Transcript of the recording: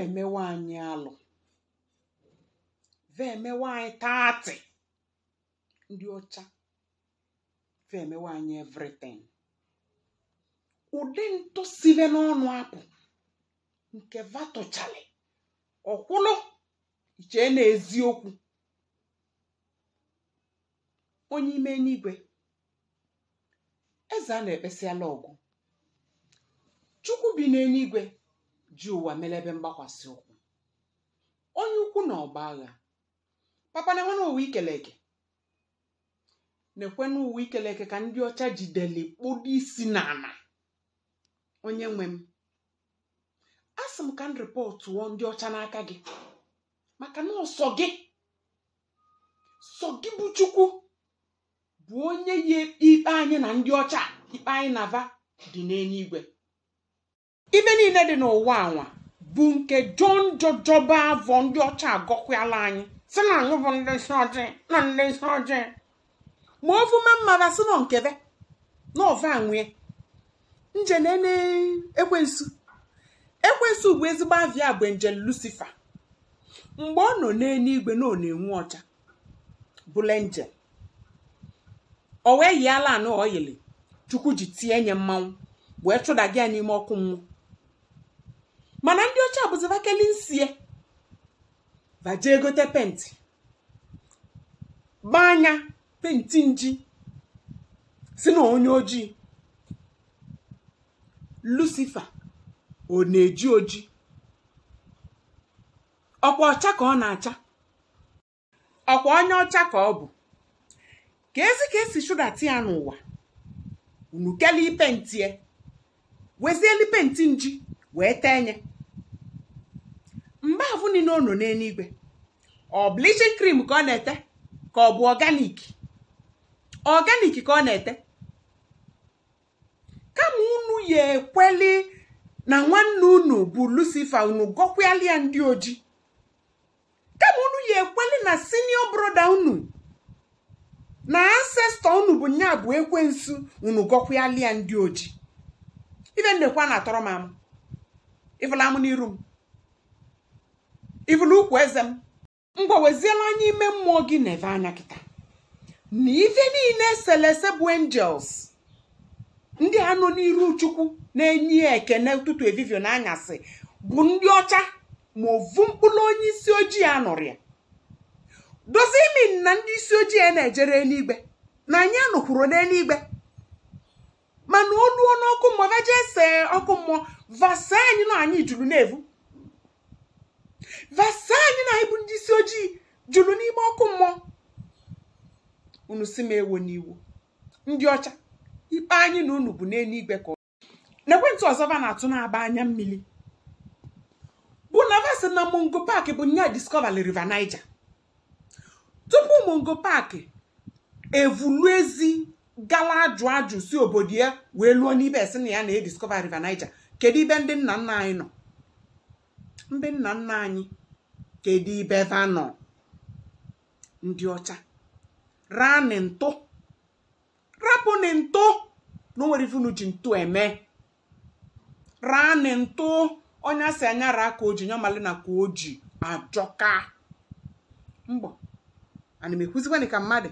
emewe anyị alụ vemewe anyị taatị ndị ọcha vemewe anyị evritin ụdị ntụ sibe n'ọnụ apụ nke vatụchali ọkwụlụ iche na onye ime n'igwe eze a na-ekpesiala ọgụ chukwu bi n'eluigwe ji ụwa mere ebe mgbakwasị ụkwụ onye ukwu na ọgba agha papa na enwena ụwa ikeleke na-ekwe n'ụwa ikeleke ka ndị ọcha jideli kpụdo isi n'ala onye nwe m a m ka m wụọ ndị ọcha n'aka gị maka na ọsọ gị sọ gị bụ chukwu bụ onye yi ikpe anyị na ndị ọcha ikpe anyị na-ava dị n'eluigwe ibe niile dị n'ụwa anwa bụ nke jon jojoba avọ ndị ọcha agọkwala anyị si na anyị bụ ndị isi ọjị na ndị isi ọjị ma ofuma mmara si nọ nkebe na ọva nwee nje ekwensu ekwensu bụ ezigbo avia bụ nje lucifa mgbe ọ nọ n'eluigwe na ọ na enwe ọcha bụla njem o wee yiala anọ oyili chukwu ji tie nye mmanwụ wee chụda gị ya n'ime ọkụ mmụọ mana ndị ọcha bụzivakeli nsie vaje gote penti gbaa anya penti nji si na onye ojii lucifer ọ na-eji oji ọkwa ọcha ka ọ na-acha ọkwa onye ọcha ka ọ bụ ka ezi ka esi chụdata ya n'ụwa unu kelee pentie wezieli penti nji wee tee nye mgbe afụ niile ọ nọ n'eluigwe ọ bleaching cream ka ọ na-ete ka ọ bụ ọganik ọganik ka ọ na-ete kama unu ya ekweli na nwanne unu bụ lucifer unu gọkwalịa ndị oji kama unu ya ekweli na senior broda unu na ancestor unu bụ nya bụ ekwensu unu gọkwalịa ndị oji ife ndekwa na-atọrọ m amụ ịfụla m n'iru m ivụl ukwu eze m mgbaweziela anya ime mmụọ gị na eve anya kịta na ife niile eselese bụ enjels ndị anụ n'iru chukwu na-enye ekene ụtụtụ evivio anyasị bụ ndị ọcha ma ovu mkpụrụ onye isi ojii a ya dozie imi na ndị isi ojii a na-ejere eluigwe na anyị anụkwuru n'eluigwe mana oluo n'ọkụ mmụọ vaje ese ọkụ mmụọ vasa anyị na anyị juru na-evu vasa anyị na anyị bụ ndị isi ojii jụrụ n'ime ọkụ mmụọ unu si m ewo n'iwu ndị ọcha ikpe anyị na unu bụ n'eluigwe ka n'ekwentị ọzọ va na-atụ na-aba anya mmiri bụ na va sị na mongo park bụ nya discover river niger tupu mongo park evulu ezi gala ajụ ajụ si obodo ya wee lụọ n'ibe esi na ya na-ediscover river niger kedu ibe ndị nna nna anyị nọ ndị nna nna anyị kedu ibe va nọ ndị ọcha raa ntụ rapụnị na onwere ifunu ji ntụ eme ranị ntụ onye asị anya raa ka oji nyọmali na ka oji ajọka mbọ ana m ekwuzikwanị ka mmadụ